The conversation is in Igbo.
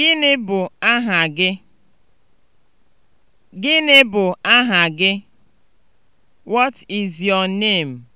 Gịnị bụ aha gị? Gịnị bụ aha What is your name?